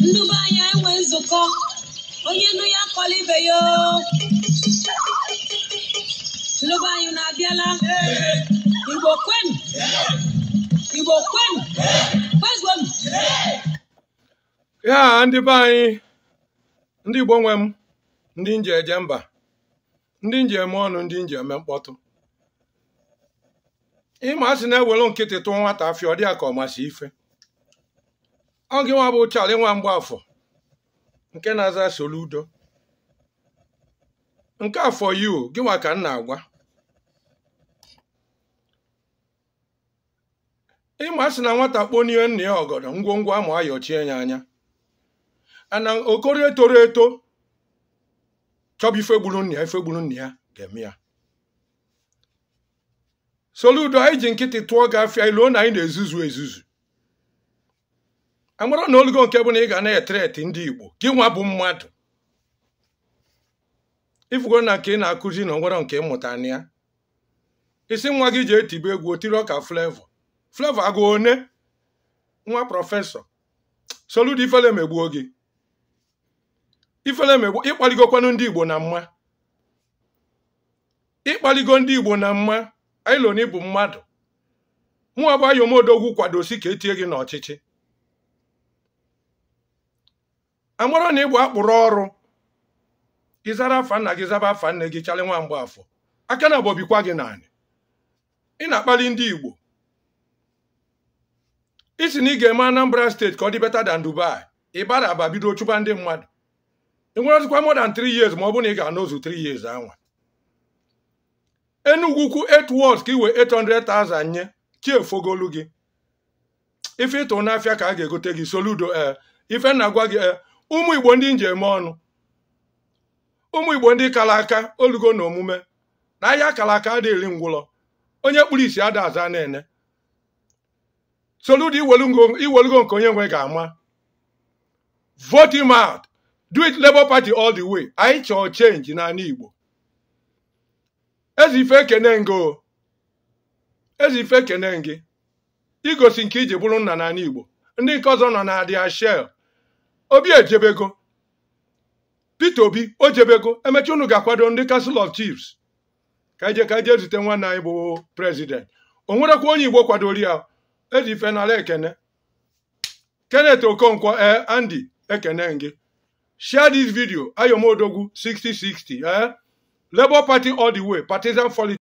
ndube anya enwe nzukọ onye nnu ya akọlibeghị ndube anyị na-abịala igbo kwenu igbo kwenu kwezonu ya ndị be anyị ndị igbo nwe m ndị nji eje mba ndị nji eme ọnụ ndị nji eme mkpọtụ ịma asị na-ewere nkịtị tụọ nwata afịa ọ dị ya ka ọ masị ife ọ gị nwa bụ Charlie nwa Mgbafọ nke na-aza Soludo nke afọ yi o, ka m na-agwa ịma sị na nwata n'ihe nna ya ọgọdọ ngwongwo amụ ayọchie ya anya ana okorie toro eto chọba ifegburu nna ya ya ga-eme ya Soludo anyị ji nkịtị tụọ gị afịa iluo na anyị na-ezuzu ezuzu amara na olugo nke bụ na ị ga na-etreti ndị igbo gị nwa bụ mmadụ ifugo na nke ị na-akụzi na onwero nke mmụta na ya isi nwa gị ji etibe egwu otiri ọka flevo flevo agụ one nwa prọfesọ soludo ifele gị ifele ịkpaligokwanụ ndị igbo na mma ịkpaligo ndị igbo na mma ailon bụ mmadụ mụọ bụ ayomodogwu kwadosi ka etie gị n'ọchịchị amara na ịbụ akpụrụ ọrụ ịzara afa nna gị zaba afa nne gị chalị nwa mgbe afọ aka na bobikwa gị naanị ị na-akpali ndị Igbo isi na ị ga-eme Anambra steeti ka ọ dị beta dan Dubai ịbara aba bido chụba ndị mmadụ ị nwere ọtụkwa dan 3 years ma ọ bụ na ị ga-anọzu 3 years anwa Enugu kwu 8 ka iwe 800,000 nye chiefogolu gị ife ịtụ n'afịa ka a ga-egote gị soludo ee eh, ife na gị ee eh, ụmụ igbo ndị nji eme ọnụ ụmụ igbo ndị kara aka olugo na omume na ahịa kara aka adịghị onye kpụrụ isi ada aza na-ene soludo iwelugo nke onye nwe ga-ama vote him out do it Labour Party all the way anyị chọọ change n'ala igbo ezi ife ekene gị igosi nke iji bụrụ nna n'ala igbo ndị nke ọzọ nọ na dia shell obi ejebego Peter Obi o jebego emechi unu ga-akwado ndị castle of Chiefs ka ije ka ije zute nwanne anyị bụ prezident o nwerekwa onye Igbo kwadori ya eji ife n'ala ekene Kenneth Okonkwo e Andy ekene gị share this video Ayomodogwu 6060 ee eh? Labour Party all the way partisan